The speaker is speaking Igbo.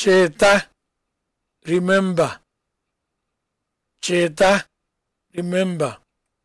Cheta, remember. Cheta, remember.